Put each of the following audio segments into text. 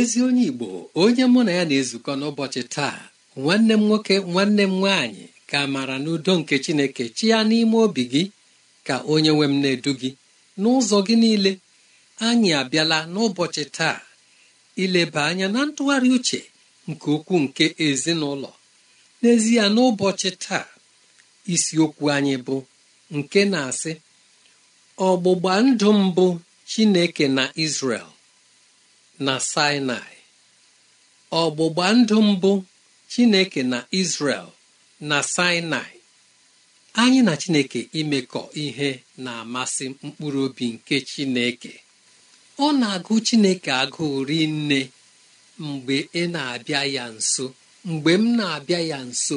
ezi onye igbo onye mụ na ya na-ezukọ n'ụbọchị taa nwanne m nwoke nwanne m nwaanyị ka maara n'udo nke chineke chi ya n'ime obi gị ka onye nwe m na-edu gị n'ụzọ gị niile anyị abịala n'ụbọchị taa ileba anya na ntụgharị uche nke ukwuu nke ezinụlọ n'ezie n'ụbọchị taa isiokwu anyị bụ nke na-asị ọgbụgba ndụ mbụ chineke na Israel na sinai ọgbụgba ndụ mbụ chineke na israel na sinai anyị na chineke imekọ ihe na-amasị mkpụrụ obi nke chineke ọ na-agụ chineke agụụ rinne mgbe ị na-abịa ya nso mgbe m na-abịa ya nso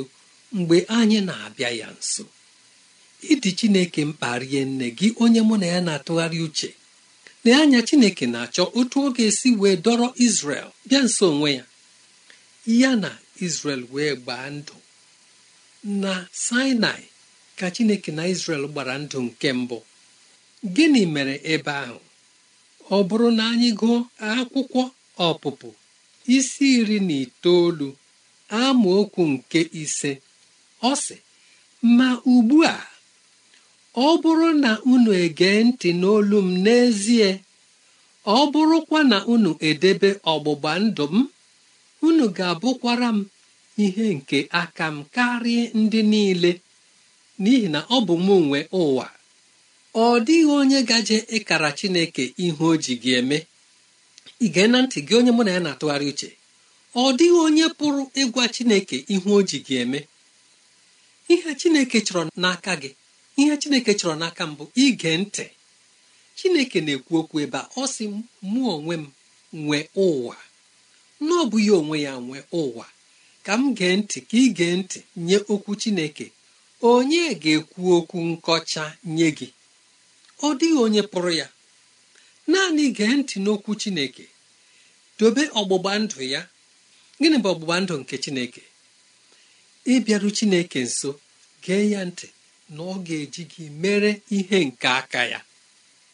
mgbe anyị na-abịa ya nso ịdị chineke mkparie nne gị onye mụ na ya na-atụgharị uche lee anya chineke na-achọ otu ọ ga-esi wee dọrọ Izrel bịa nso onwe ya ya na Izrel wee gbaa ndụ na Sinai ka chineke na Izrel gbara ndụ nke mbụ gịnị mere ebe ahụ ọ bụrụ na anyị gụọ akwụkwọ ọpụpụ isi iri na itoolu amaokwu nke ise ọ sị ma ugbu a ọ bụrụ na unu egee ntị n'olu m n'ezie ọ bụrụkwa na unu edebe ọgbụgba ndụ m unu ga-abụkwara m ihe nke aka m karịa ndị niile n'ihi na ọ bụ m nwe ụwa ọ dịghị onye gaje ịkara Chineke ihe o ji gị eme ige na ntị gị onye mụ na ya na-atụgharị uche ọ dịghị onye pụrụ ịgwa Chineke ihe o ji gị eme ihe Chineke chọrọ n'aka gị ihe chineke chọrọ n'aka mbụ ige ntị chineke na-ekwu okwu ebe a ọ sị mụ onwe m nwee ụwa n'ọ bụ ya onwe ya nwee ụwa ka m gee ntị ka ị gee ntị nye okwu chineke onye ga-ekwu okwu nkọcha nye gị ọ dịghị onye pụrụ ya naanị gee ntị n'okwu chineke dobe ọgbụgba ndụ ya gịnị bụ ọgbụgba ndụ nke chineke ịbịaru chineke nso gee ya ntị na ọ ga-eji gị mere ihe nke aka ya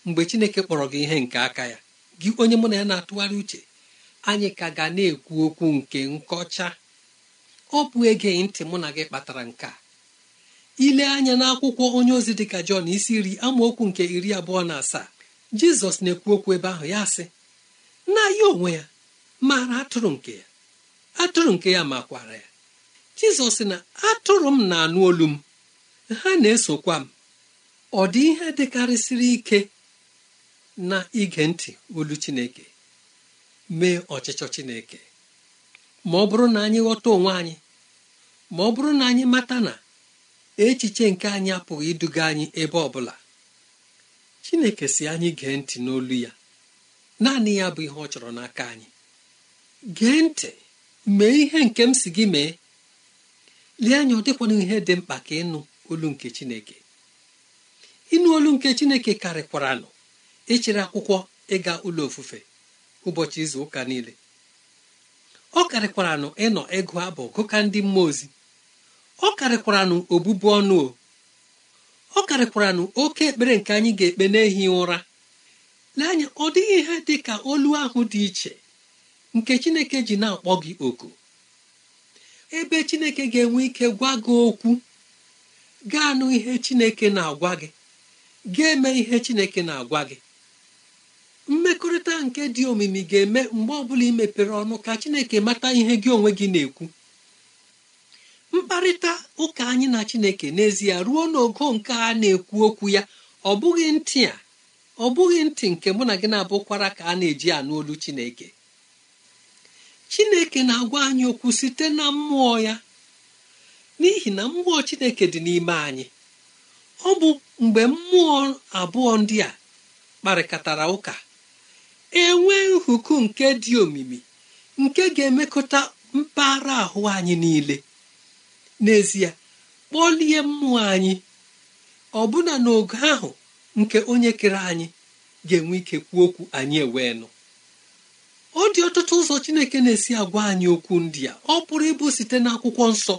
mgbe Chineke kpọrọ gị ihe nke aka ya gị onye mụ na ya na-atụgharị uche anyị ka ga na-ekwu okwu nke nkọcha ọ bụ ege ntị mụ na gị kpatara nke a ile anya n'akwụkwọ onye ozi dị ka Jọn isi iri amaokwu nke iri abụọ na asaa Jizọs na-ekwu okwu ebe ahụ ya sị na ya onwe ya maara atụrụ nke ya atụrụ nke ya makwara ya Jizọs na atụrụ m na-anụ olu m ha na-esokwa m ọ dị ihe dịkarịsịrị ike na ige ntị olu Chineke mee ọchịchọ Chineke ma ọ bụrụ na anyị ghọta onwe anyị ma ọ bụrụ na anyị mata na echiche nke anyị apụghị iduga anyị ebe ọ bụla Chineke si anyị gee ntị n'olu ya naanị ya bụ ihe ọ chọrọ n'aka anyị gee ntị mee ihe nke m si gị mee lee anya ọ dịkwana ihe dị mkpa ka ịnụ olu nke chineke ịnụ olu nke chineke karịkwaranụ echere akwụkwọ ịga ụlọ ofufe ụbọchị izu ụka niile ọ karịkwaranụ ịnọ ịgụ abụ gụka ndị mmụọ ozi ọ karịkwaranụ obụbu ọnụ o ọ karịkwaranụ oke ekpere nke anyị ga-ekpe n'ehi ụra anya ọ dịghị ihe dị ka olu ahụ dị iche nke chineke ji na-akpọ gị oku ebe chineke ga-enwe ike gwa gị okwu Gaa anụ ihe chineke na-agwa gị ga-eme ihe chineke na-agwa gị mmekọrịta nke dị omimi ga-eme mgbe ọbụla ị mepere ọnụ ka chineke mata ihe gị onwe gị na-ekwu mkparịta ụka anyị na chineke n'ezie ruo n'ogo nke a na-ekwu okwu ya ọ bụghị ntị a ọ bụghị ntị nke mụ na gị na-abụkwara ka a na-eji anụ olu chineke chineke na-agwa anyị okwu site na mmụọ ya n'ihi na mmụọ chineke dị n'ime anyị ọ bụ mgbe mmụọ abụọ ndị a kparịkọtara ụka enwe nhuku nke dị omimi nke ga-emekọta mpaghara ahụ anyị niile n'ezie kpọlie mmụọ anyị ọbụna n'ogo ahụ nke onye kere anyị ga-enwe ike kwuo okwu anyị ewee nụ ọ dị ọtụtụ ụzọ chineke na-esi agwa anyị okwu ndị a ọ pụrụ ịbụ site n'akwụkwọ nsọ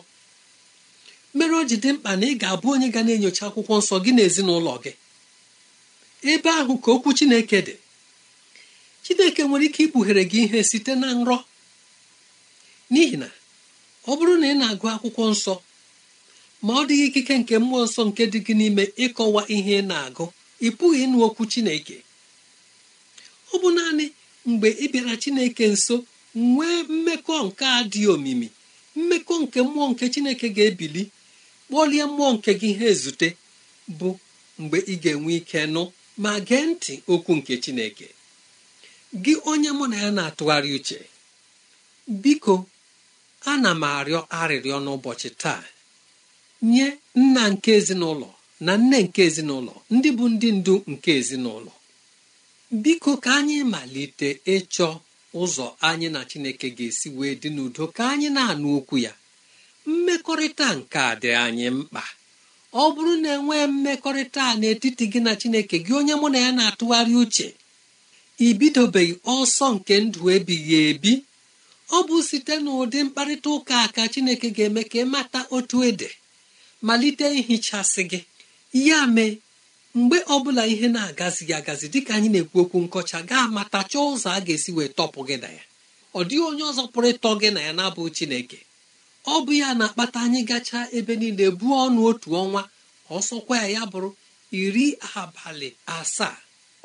mere o ji dị mkpa na ị ga-abụ onye ga na-enyocha akwụkwọ nsọ gị na ezinụlọ gị ebe ahụ ka okwu chineke dị chineke nwere ike ikpughere gị ihe site na nrọ n'ihi na ọ bụrụ na ị na-agụ akwụkwọ nsọ ma ọ dịghị ikike nke mmụọ nsọ nke dị gị n'ime ịkọwa ihe ị na-agụ ị pụghị ịnụ okwu chineke ọ bụ naanị mgbe ị bịara chineke nso nwee mmekọ nke a dị omimi mmekọ nke mmụọ nke chineke ga-ebili kpọlie mmụọ nke gị ha ezute bụ mgbe ị ga-enwe ike nụ ma gee ntị okwu nke chineke gị onye mụ na ya na-atụgharị uche biko ana m arịọ arịrịọ n'ụbọchị taa nye nna nke ezinụlọ na nne nke ezinụlọ ndị bụ ndị ndu nke ezinụlọ biko ka anyị malite ịchọ ụzọ anyị na chineke ga-esi wee dị n'udo ka anyị na-anụ okwu ya mmekọrịta nke a dị anyị mkpa ọ bụrụ na nwee mmekọrịta n'etiti gị na chineke gị onye mụ na ya na-atụgharị uche ibidobeghị ọsọ nke ndụ ebighị ebi ọ bụ site n'ụdị mkparịta ụka ka chineke ga-eme ka mata otu ede malite ihichasị gị ya mee mgbe ọbụla ihe na agazighị agazi dịka anyị na-ekwu okwu nkọcha gaa mata chọọ ụzọ a ga-esi wee tọpụ gị na ya ọ dịghị onye ọzọ pụrụ ịtọ gị na ya na-abụ chineke ọ bụ ya na-akpata anyị gachaa ebe niile buo ọnụ otu ọnwa ọsọkwa ya ya bụrụ iri abalị asaa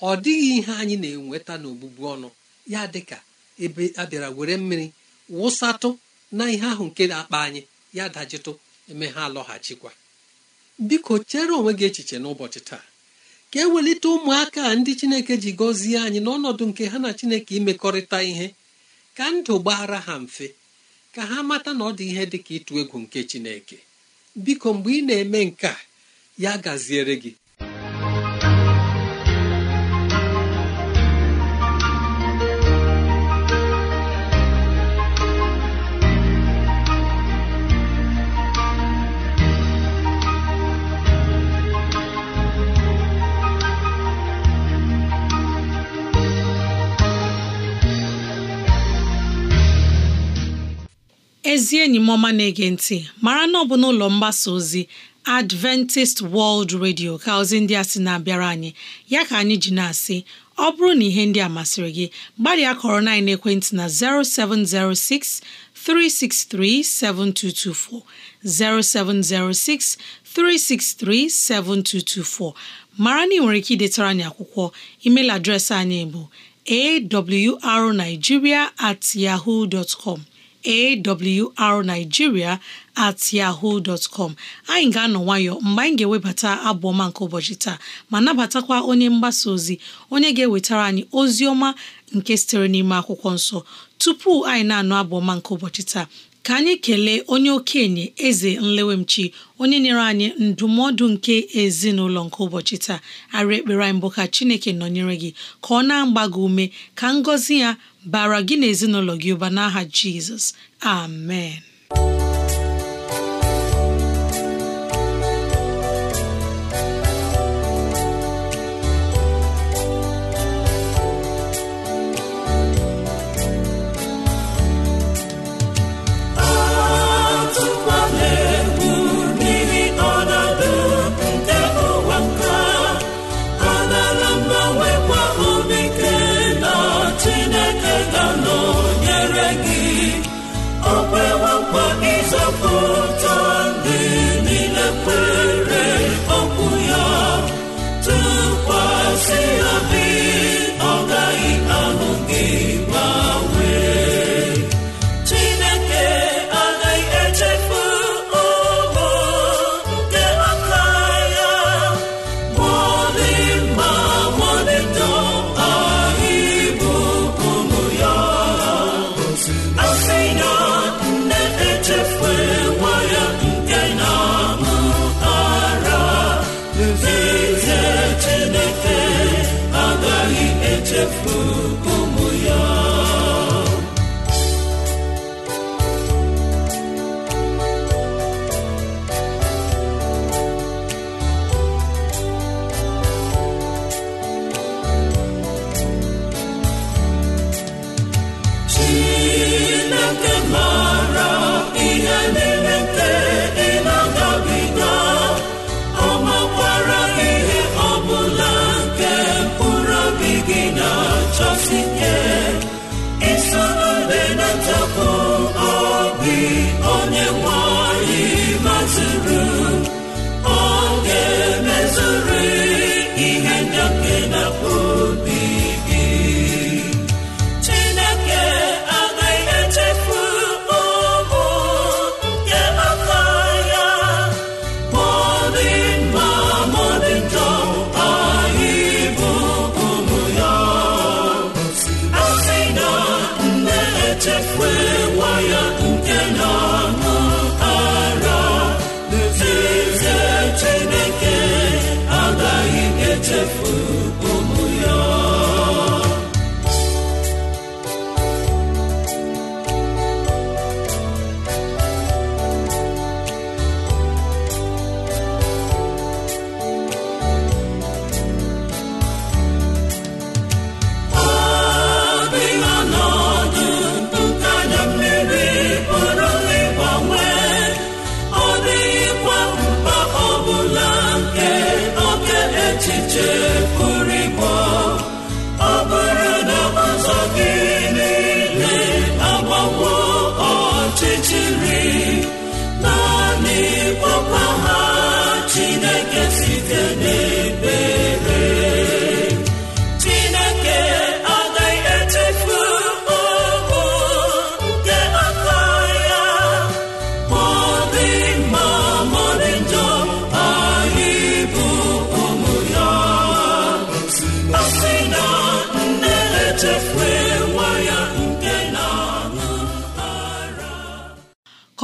ọ dịghị ihe anyị na-enweta n'ogbugbu ọnụ ya dịka ebe a bịara were mmiri wụsatụ na ihe ahụ nke na-akpa anyị ya dajitụ eme ha alọghachikwa biko chere onwe gị echiche n'ụbọchị taa ka e welite ụmụaka ndị chineke ji gọzie anyị n'ọnọdụ nke ha na chineke imekọrịta ihe ka ndụ gbaara ha mfe ka ha mata na ọ dị ihe dị ka ịtụ egwu nke chineke biko mgbe ị na-eme nke a ya gaziere gị ezi enyi m ọma na-ege ntị mara na ọ bụ n'ụlọ mgbasa ozi Adventist World Radio ka ozi ndị a sị na-abịara anyị ya ka anyị ji na-asị ọ bụrụ na ihe ndị a masịrị gị gbalịa kọrọ na ekwentị na 0706 363 7224 0706 363 7224 mara na ị nwere ike idetara anyị akwụkwọ email adreesị anyị bụ awrnigeria at yahoo dot com awrnigeria at yahoo dot com anyị ga-anọ nwayọ mgbe anyị ga-ewebata abụ nke ụbọchị taa ma nabatakwa onye mgbasa ozi onye ga-ewetara anyị ozi ọma nke sitere n'ime akwụkwọ nsọ tupu anyị na-anụ abụ nke ụbọchị taa ka anyị kelee onye okenye eze nlewemchi onye nyere anyị ndụmọdụ nke ezinụlọ nke ụbọchị taa arị ekpere anyị mbụ ka chineke nọnyere gị ka ọ na-agba gị ume ka ngọzi ya bara gị na ezinụlọ gị ụba n'aha Jizọs amen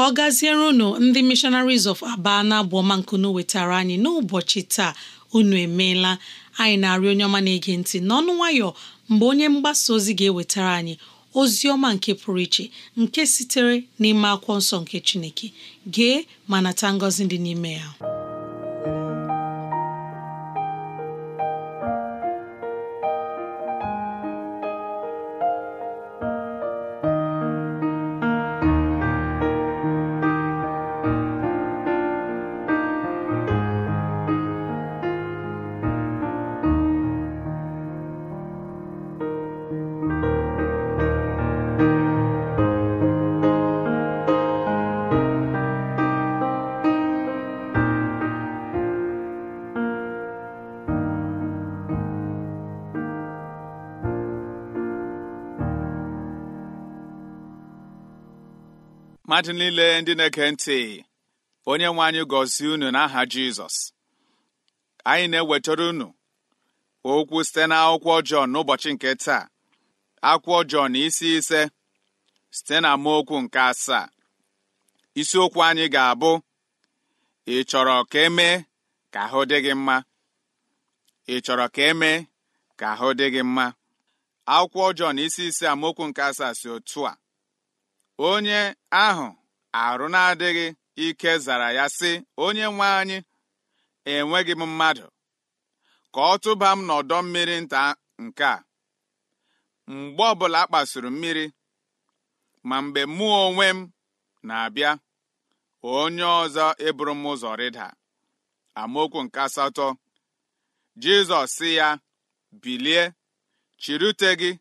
ka ọ gaziere unu ndị missionaries of aba na abụọmankunu wetara anyị n'ụbọchị taa unu emeela anyị na-arị onye ọma na-ege ntị n'ọnụ nwayọọ mgbe onye mgbasa ozi ga-ewetara anyị ozi ọma nke pụrụ iche nke sitere n'ime akwụkwọ nsọ nke Chineke gee ma nata ngọzi dị n'ime ya mmadụ niile ndị na eke ntị onye nwe anyị gọzie unu n'aha Jizọs anyị na-ewetara unu okwu site na akwụkwọ Jọn n'ụbọchị nke taa akwụkwọ Jọn isi ise site na amaokwu nke asaa isiokwu anyị ga-abụ ị chọrọ ka emee ka ahụ dị gị mma ị chọrọ ka e akwụkwọ Jọn isi ise amaokwu nke asaa si otu a onye ahụ arụ na-adịghị ike zara ya sị onye nwe anyị enweghị m mmadụ ka ọ tụba m n'ọdọ mmiri nta nke a mgbe ọbụla a kpasuru mmiri ma mgbe mụ onwe m na-abịa onye ọzọ eburu m ụzọ rịda amaokwu nke asatọ Jizọs sị ya bilie chirute gị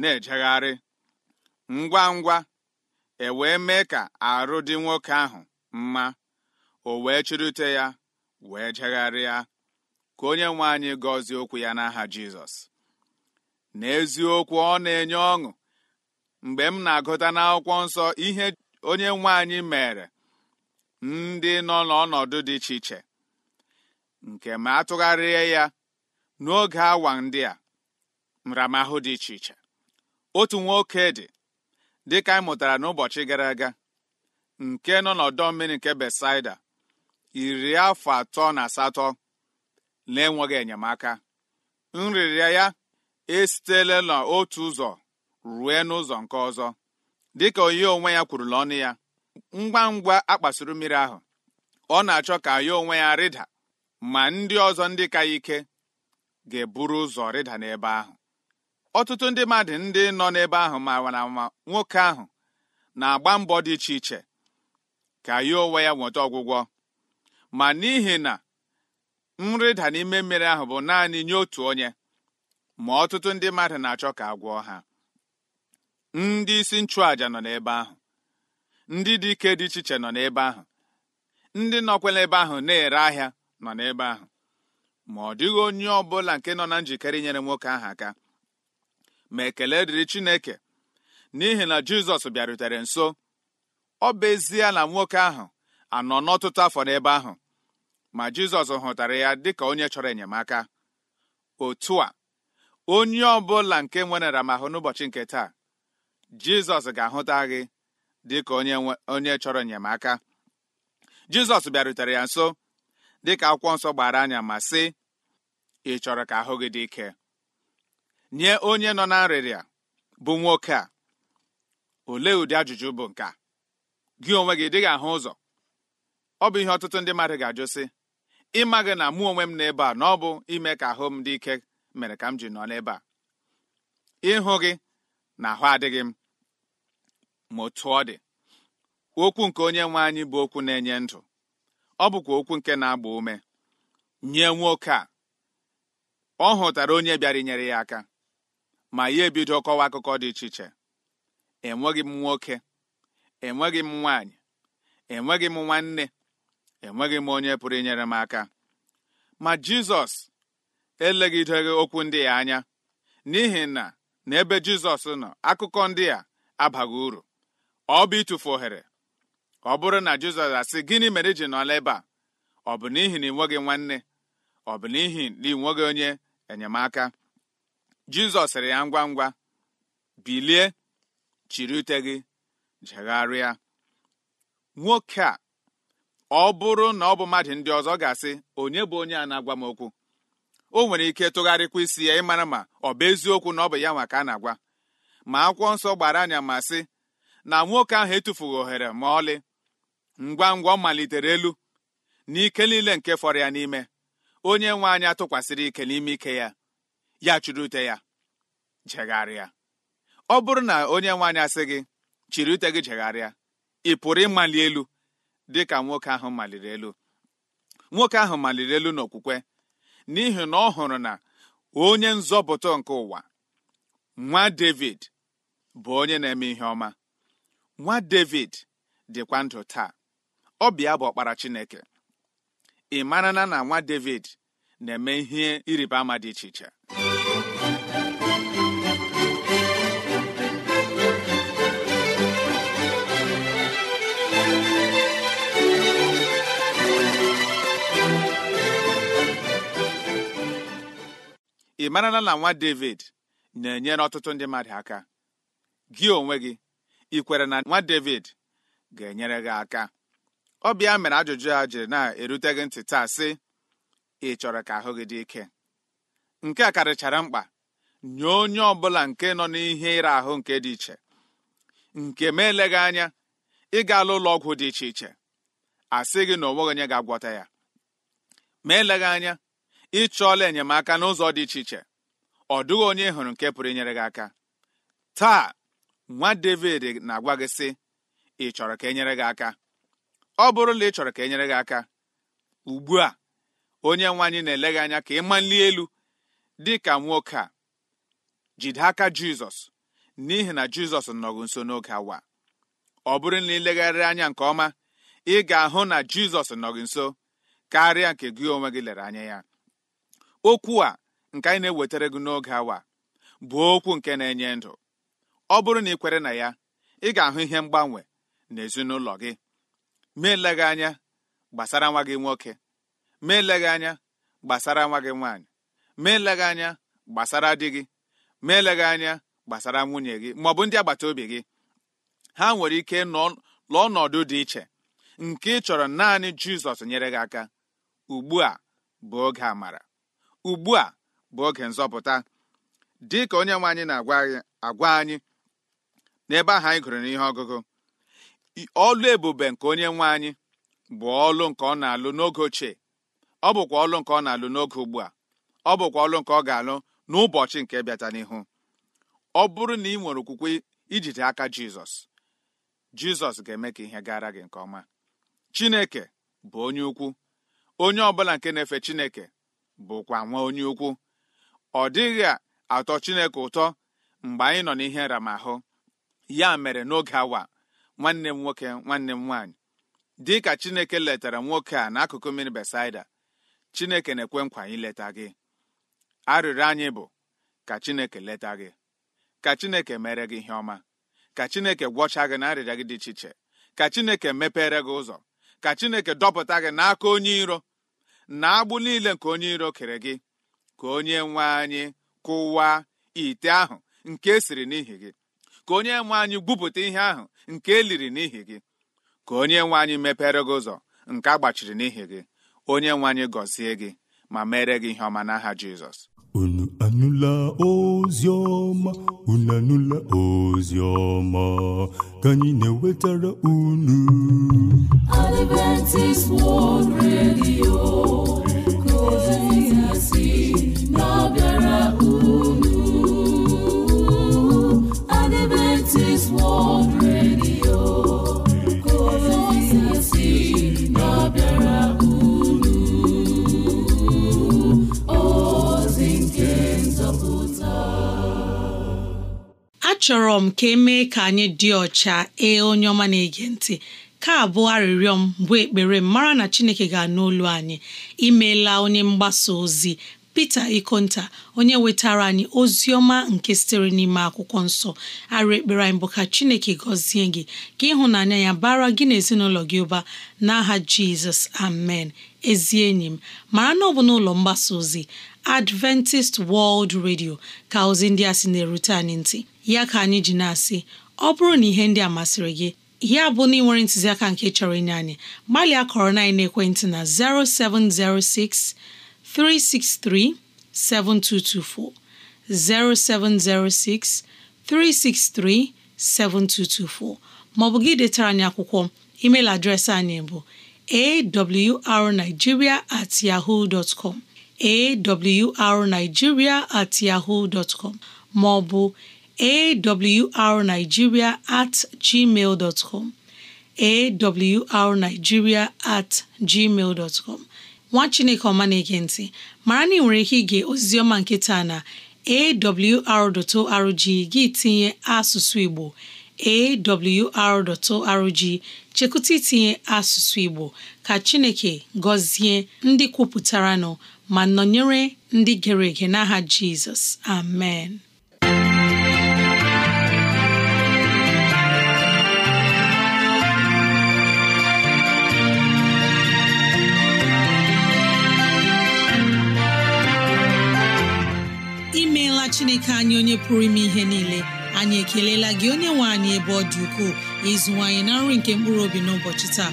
na-ejegharị ngwa ngwa e wee mee ka arụ dị nwoke ahụ mma o wee chirute ya wee jegharịa ka onye nwe anyị gọzie okwu ya n'aha Jizọs n'eziokwu ọ na-enye ọṅụ mgbe m na-agụta n'akwụkwọ nsọ ihe onye nwe mere ndị nọ n'ọnọdụ dị iche iche nke ma atụgharịa ya n'oge awa ndị a nramahụ dị iche iche otu nwoke dị dịka anyị mụtara n'ụbọchị gara aga nke nọ n'ọdọ mmiri nke Besaida iri afọ atọ na asatọ na-enweghị enyemaka nrịrịa ya esitela n'otu ụzọ rue n'ụzọ nke ọzọ dịka onye onwe ya kwuru n'ọnụ ya ngwa ngwa akpasuru mmiri ahụ ọ na-achọ ka ya onwe ya rịda ma ndị ọzọ ndị ka ike ga-eburu ụzọ rịda n'ebe ahụ ọtụtụ ndị mmadụ ndị nọ n'ebe ahụ mara ma nwoke ahụ na-agba mbọ dị iche iche ka ya onwe ya nweta ọgwụgwọ ma n'ihi na nrịda n'ime mmiri ahụ bụ naanị nye otu onye ma ọtụtụ ndị mmadụ na-achọ ka agwọọ ha ndị isi nchụàja nọ n'ebe ahụ ndị dike dị iche iche nọ n'ebe ahụ ndị nọkwela ebe ahụ na-ere ahịa nọ n'ebe ahụ ma ọ dịghị onye ọ bụla nke nọ na njikere inyere nwoke ahụ aka ma ekele dịrị Chineke n'ihi na Jizọs bịarutere nso ọ bụ ezie na nwoke ahụ anọ n'ọtụtụ afọ n'ebe ahụ ma Jizọs hụtara ya dịka onye chọrọ enyemaka otu a onye ọbụla nke nwere ramahụ n'ụbọchị nke taa Jizọs ga-ahụta gị dịka onye chọrọ enyemaka Jizọs bịarutere ya nso dịka akwụkwọ nsọ gbara anya ma sị ị chọrọ ka ahụ gị dị ike nye onye nọ na nrịrịa bụ nwoke a olee ụdị ajụjụ bụ nke a gị onwe gị dịghị ahụ ụzọ ọ bụ ihe ọtụtụ ndị mmadụ ga-ajụ sị ịma gị na mụ onwe m n'ebe a na ọ bụ ime ka ahụ m dị ike mere ka m ji nọ n'ebe a ịhụ gị na ahụ adịghị m ma otu ọ dị okwu nke onye nwe anyị bụ okwu na-enye ndụ ọ bụkwa okwu nke na-agba ume nye nwoke a ọ hụtara onye bịara inyere ya aka ma ya ebido kọwa akụkọ dị iche iche enweghị m nwoke enweghị m nwaanyị enweghị m nwanne enweghị m onye pụrụ inyere m aka ma jizọs elegideghị okwu ndị ya anya n'ihi na n'ebe jizọs nọ akụkọ ndị a abaghị uru ọ bụ ịtụfu ohere ọ bụrụ na jizọs asị gịnị mere ji nọla ebe a ọ bụ n'ihi na ị nweghị nwanne ọ bụ n'ihi na ị nweghị onye enyemaka jizọs sịrị ya ngwa ngwa bilie chiri ute gị jegharịa nwoke a ọ bụrụ na ọ bụ mmadụ ndị ọzọ ga-asị onye bụ onye a na-agwa m okwu o nwere ike tụgharịkwa isi ya ịmara ma ọ bụ eziokwu na ọ bụ ya nwa ka a na-agwa ma akwụkwọ nsọ gbara anya ma sị na nwoke ahụ etufughị ohere ma ọlị ngwa ngwa ọ malitere elu na ike niile nke fọrọ ya n'ime onye nwe anya tụkwasịrị ike n'ime ike ya ya chịrị ya jegharịa ọ bụrụ na onye nwaanyị asị gị chiri ute gị jegharịa ị pụrụ ịmali elu dị ka nwoke ahụ maliri elu nwoke ahụ maliri elu n'okwukwe n'ihi na ọ hụrụ na onye nzọpụta nke ụwa nwa David bụ onye na-eme ihe ọma nwa David dịkwa ndụ taa ọ bịa bụ ọkpara Chineke ị marana na nwa David na-eme ihe ịrịba ama dị iche iche ị marala na nwa david na-enyere ọtụtụ ndị mmadụ aka gị onwe gị ị kwere na nwa david ga-enyere gị aka Ọ bịa mere ajụjụ a jiri na-erute gị ntị taa sị ị chọrọ ka ahụ gị dị ike nke a karịchara mkpa nye onye ọ bụla nke nọ n'ihe ịra ahụ nke dị iche nke ma eleghị anya ịga ala ụlọ ọgwụ dị iche iche asị gị na onweghị onye ga-agwọta ya ma eleghị anya ịchọọla enyemaka n'ụzọ dị iche iche ọ dịghị onye hụrụ nke pụrụ inyere gị aka taa nwa David na-agwa gị sị ị chọrọ ka enyere gị aka ọ bụrụ na ị chọrọ ka enyere gị aka ugbu a onye nwe anyị na-ele gị anya ka ị mali elu dị ka nwoke a jide aka Jizọs n'ihi na Jizọs nọgụ nso n'oge awa ọ bụrụ na ilegharịrị anya nke ọma ị ga-ahụ na Jizọs nọgị nso karịa nke gị onwe gị lere anya ya okwu a nke anyị na-ewetara gị n'oge awa bụ okwu nke na-enye ndụ ọ bụrụ na ị kwere na ya ị ga-ahụ ihe mgbanwe n'ezinụlọ gị ma gị anya gbasara nwa gị nwoke ma gị anya gbasara nwa gị nwaanyị ma gị anya gbasara di gị ma gị anya gbasara nwunye gị ma ọ bụ ndị agbata obi gị ha nwere ike lụọ ọnọdụ dị iche nke ị chọrọ naanị Jizọs nyere gị aka ugbu a bụ oge amara ugbu a bụ oge nzọpụta dị ka onye nwe anyị na-agwa anyị n'ebe ahụ anyị gụrụ n'ihe ọgụgụ ọlụ ebube nke onye nwe anyị bụ ọlụ nke ọ na-alụ n'oge ochie ọ bụkwa ọlụ nke ọ na-alụ n'oge ugbu a ọ bụkwa ọlụ nke ọ ga-alụ n'ụbọchị nke bịata n'ihu ọ bụrụ na ị nwere okwukwe ijide aka Jizọs Jizọs ga-eme ka ihe gara gị nke ọma Chineke bụ onye ukwu onye ọbụla nke na-efe Chineke bụkwa nwa onye ukwu ọ dịghị atọ chineke ụtọ mgbe anyị nọ n'ihe nramahụ ya mere n'oge awa nwanne m nwoke nwanne m nwaanyị dị ka chineke letara nwoke a n'akụkụ mmiri besaida chineke na-ekwe nkwa anyị leta gị arịrịọ anyị bụ ka chineke leta gị ka chineke mere gị ihe ọma ka chineke gwọcha gị na gị dị iche iche ka chineke mepere gị ụzọ ka chineke dọpụta gị n'aka onye iro na agbụ niile nke onye iro kere gị ka onye nwe anyị kụwaa ite ahụ nke esiri n'ihi gị ka onye nwe anyị gwupụta ihe ahụ nke eliri n'ihi gị ka onye nwe anyị mepere gị ụzọ nke a gbachiri n'ihi gị onye nwe anyị gọzie gị ma mere gị ihe ọma n'aha Jizọs unu anụla ozi ọma unu anụla ozi ọma ka anyị na-ewetara unu Adventist World Radio ka ozi si achọrọ m ka emee ka anyị dị ọcha ee onye ọma na-ege ntị ka abụọ arịrịọ m bụ ekpere m mara na Chineke ga-anụ olu anyị imeela onye mgbasa ozi Pita Ikonta onye wetara anyị ozi ọma nke sitere n'ime akwụkwọ nsọ arụ ekpere anyị bụ ka Chineke gọzie gị ka ịhụnanya ya bara gị na ezinụlọ gị ụba n'aha Jizọs amen ezi enyi m mara na ọ bụ n'ụlọ mgbasa ozi Adventist World Radio ka ozi ndị a sị na-erute anyị ntị ya ka anyị ji na-asị ọ bụrụ na ihe ndị a masịrị gị ya bụ na ị nwere ntụziaka nke chọrọ inye anyị gbalịa kọrọ na ekwentị na 0706 363 7224 0706 363 7224 maọbụ gị detara anyị akwụkwọ email adreesị anyị bụ awrnigeria at yahoo dot com awrnigeria at yahoo dot com maọbụ awrnigeria at gmail dot com awrnigeria at gmail dot com nwa chineke ọma na-ege mara na ị nwere ike ige ozizioma nkịta na awr.org gị tinye asụsụ igbo awr.org chekụta itinye asụsụ igbo ka chineke gọzie ndị kwupụtaranụ ma nọnyere ndị gere ege n'aha jizọs amen imeela chineke anyị onye pụrụ ime ihe niile anyị ekelela gị onye nwe anyị ebe ọ dị ukwuu ịzụwanyị na nri nke mkpụrụ obi n'ụbọchị taa